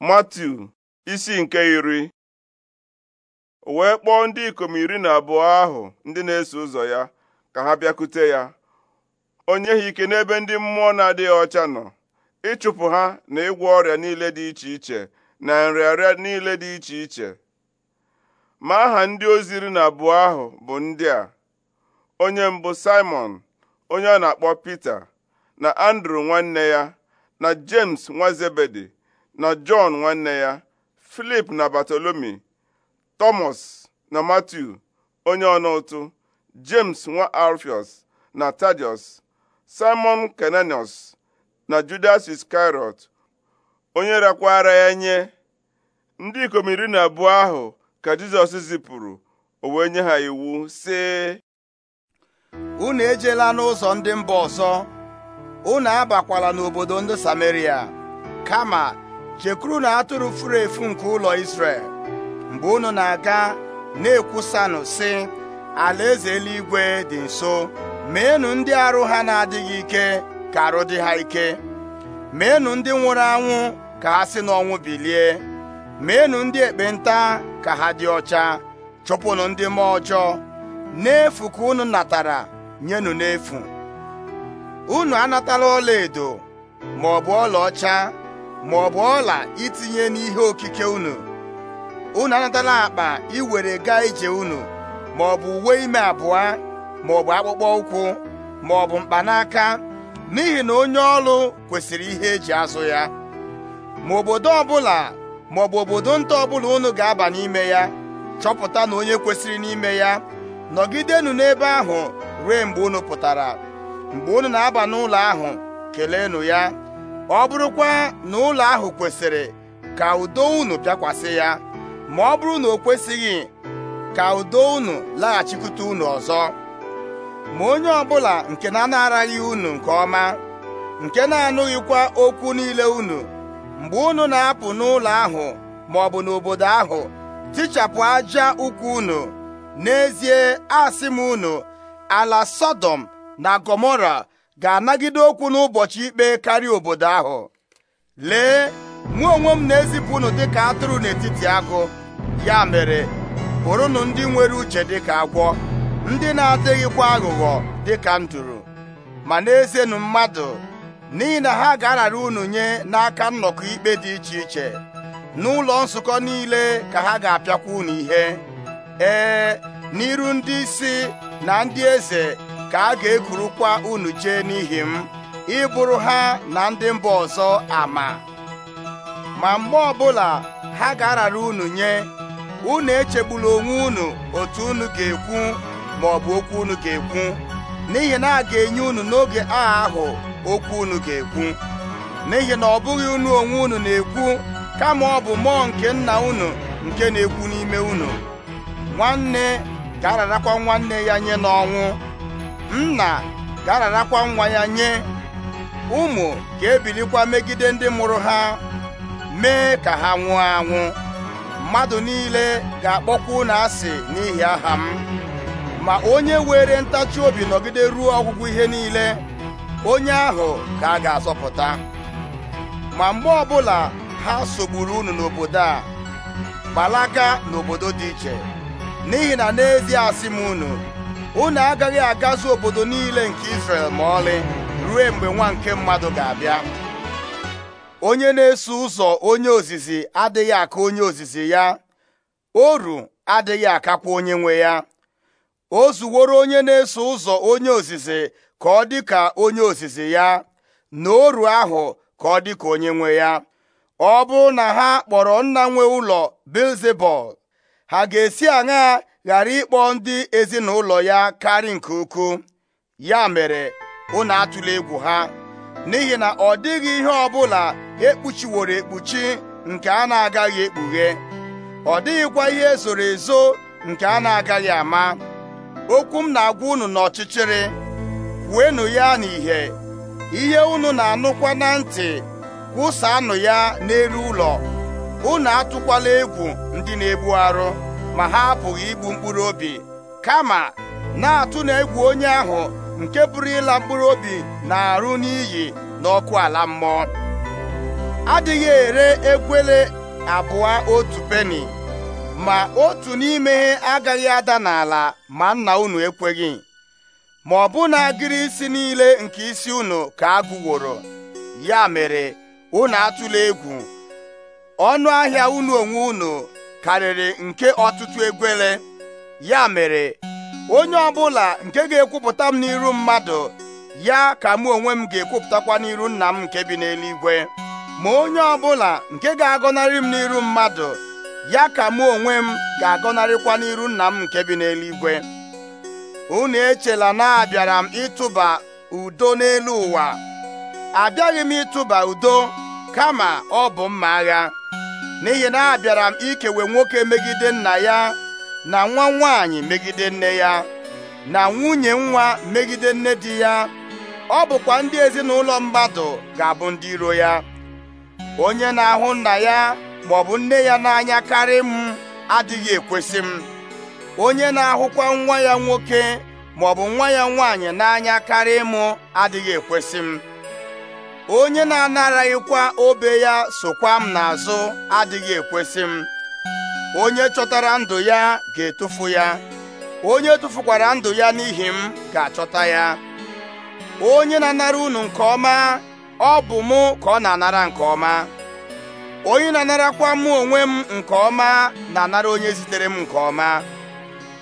Matiu isi nke iri wee kpọọ ndị ikom iri na abụọ ahụ ndị na-eso ụzọ ya ka ha bịakute ya onye ha ike n'ebe ndị mmụọ na-adịghị ọcha nọ ịchụpụ ha na ịgwọ ọrịa niile dị iche iche na nrịarịa niile dị iche iche ma aha ndị ozi iri na abụọ ahụ bụ ndị a onye mbụ Simon onye a na-akpọ Pita na Andrew nwanne ya na James nwa na jọn nwanne ya filip na batolomi tọmọs na matiu onye ọna ụtụ james nwa alfios na tadius simon kenanios na judas iskariot onye rakwara ya nye ndị ikom iri na abụọ ahụ ka jizọs zipụrụ o wee nye ha iwu sị unu ejela n'ụzọ ndị mba ọzọ unu abakwala n'obodo ndị sameria kama chekwuru na atụrụ furu efu nke ụlọ isrel mgbe unu na-aga na-ekwusanụ si alaeze eluigwe dị nso meenụ ndị arụ ha na-adịghị ike ka arụ dị ha ike meenụ ndị nwụrụ anwụ ka ha si n'ọnwụ bilie meenụ ndị ekpenta ka ha dị ọcha chụpụnụ ndị mmụọ ọjọọ n'efu ka unu natara nyenụ n'efu unu anatala ọla edo ma ọlaọcha ma ọ bụ ọla itinye n'ihe okike unu unu anatala akpa iwere gaa ije unu ma ọ bụ uwe ime abụọ ma ọ bụ akpụkpọ ụkwụ ma ọ bụ mkpanaka n'ihi na onye ọrụ kwesịrị ihe eji azụ ya ma obodo ọbụla ma ọ bụ obodo nta ọbụla unu ga-aba n'ime ya chọpụta na onye kwesịrị n'ime ya nọgidenụ n'ebe ahụ ruo mgbe unu pụtara mgbe unu na-aba n'ụlọ ahụ keleenụ ya ọ bụrụkwa na ụlọ ahụ kwesịrị ka udo unu bịakwasị ya ma ọ bụrụ na o kwesịghị ka udo unu laghachikwute unu ọzọ ma onye ọbụla nke na-anaraghị unu nke ọma nke na-anụghịkwa okwu niile unu mgbe unu na-apụ n'ụlọ ahụ ma ọ bụ n'obodo ahụ tichapụ aja ụkwụ unu n'ezie asị m unu ala Sọdọm na Gomora. ga-anagide okwu n'ụbọchị ikpe karịa obodo ahụ lee mụ onwe m na-ezipụ unu dịka atụrụ n'etiti agụ ya mere bụrụnụ ndị nwere uche dịka agwọ ndị na-adịghịkwa aghụghọ dịka nduru ma na-ezenụ mmadụ n'ihi na ha ga-arara unu nye n'aka nnọkọ ikpe dị iche iche n'ụlọ nzukọ niile ka ha ga-apịakwa unu ihe ee n'iru ndị isi na ndị eze ka a ga-ekurukwa unu jee n'ihi m ịbụrụ ha na ndị mba ọzọ ama ma mgbe ọbụla ha ga-arara unu nye unu echegbula onwe unu otu unu ga-ekwu ma ọ bụ okwu unu ga-ekwu n'ihi na a ga-enye unu n'oge agha ahụ okwu unu ga-ekwu n'ihi na ọ bụghị unu onwe unu na-ekwu kama ọ bụ mmụọ nke nna unu nke na-ekwu n'ime unu nwanne ga-ararakwa nwanne ya nye n'ọnwụ nna ga-ararakwa nwa ya nye ụmụ ga-ebilikwa megide ndị mụrụ ha mee ka ha nwụọ anwụ mmadụ niile ga-akpọkwa na asị n'ihi aha m ma onye were ntachi obi nọgide ruo ọgwụgwụ ihe niile onye ahụ ka a ga-azọpụta ma mgbe ọbụla ha sogburu unu n'obodo a gbalaka n'obodo dị iche n'ihi na n'ezie asị m unu unu agaghị agazu obodo niile nke israel ma ọlị ruo mgbe nwa nke mmadụ ga-abịa onye na-eso ụzọ onye ozizi adịghị aka onye ozizi ya oru adịghị akakwa onye nwe ya o zuworo onye na-eso ụzọ onye ozizi ka ọ dị ka onye ozizi ya na oru ahụ ka ọ dị ka onye nwe ya ọ bụrụ na ha kpọrọ nna nwe ụlọ Bilzebul ha ga-esi aṅaa ghara ịkpọ ndị ezinụlọ ya karị nke ukwu ya mere unu atụla egwu ha n'ihi na ọ dịghị ihe ọbụla ekpuchiworo ekpuchi nke a na-agaghị ekpughe ọ dịghịkwa ihe zoro ezo nke a na-agaghị ama okwu m na-agwa unu n'ọchịchịrị kwuenụ ya n'ìhè ihe unu na-anụkwa na ntị kwụsaanụ ya n'elu ụlọ unu atụkwala egwu ndị na-egbu arụ ma ha apụghị igbu mkpụrụ obi kama na-atụ na egwu onye ahụ nke pụrụ ịla mkpụrụ obi na-arụ n'iyi n'ọkụ ala mmụọ adịghị ere egwele abụọ otu peni ma otu n'ime agaghị ada n'ala ma nna unu ekweghị ma ọ bụ na agịrị isi niile nke isi unu ka agụworo ya mere unu atụla egwu ọnụ ahịa unu onwe unu karịrị nke ọtụtụ egwele ya mere onye ọbụla nke ga-ekwupụta m n'iru mmadụ ya ka mụ onwe m ga-ekwupụtakwa n'iru nna m nke bi n'eluigwe ma onye ọbụla nke ga-agọnarị m n'iru mmadụ ya ka mụ onwe m ga-agọnarịkwa n'iru nna m nke bi n'eluigwe unu echela na abịara m ịtụba udo n'elu ụwa abịaghị m ịtụba udo kama ọ bụ mma agha n'ihi na abịara m ikewe nwoke megide nna ya na nwa nwaanyị megide nne ya na nwunye nwa megide nne di ya ọ bụkwa ndị ezinụlọ mmadụ ga-abụ ndị iro ya onye na-ahụ nna ya maọbụ nne ya onye na-ahụkwa nwa ya nwoke maọbụ nwa ya nwaanyị n'anya karị m adịghị ekwesị m onye na-anaraghịkwa obe ya sokwa m n'azụ adịghị ekwesị m onye chọtara ndụ ya ga-etufu ya onye tufukwara ndụ ya n'ihi m ga-achọta ya onye na-anara unu nke ọma ọ bụ mụ ka ọ na-anara nke ọma onye na-anarakwa mụ onwe m nke ọma na-anara onye zitere m nke ọma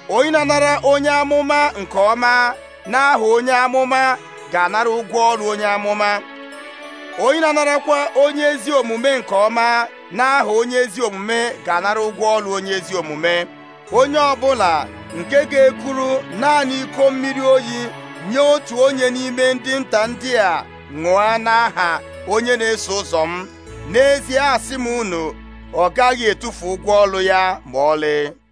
onye na-anara onye amụma nke ọma n'aha onye amụma ga-anara ụgwọ ọrụ onye amụma onye na-anarakwa onye ezi omume nke ọma n'aha onye ezi omume ga-anara ụgwọ ọrụ onye ezi omume onye ọbụla nke ga-ekuru naanị iko mmiri oyi nye otu onye n'ime ndị nta ndị a ṅụọ n'aha onye na-eso ụzọ m n'ezie asị m unu ọ gaghị etufu ụgwọ ọrụ ya ma ọlị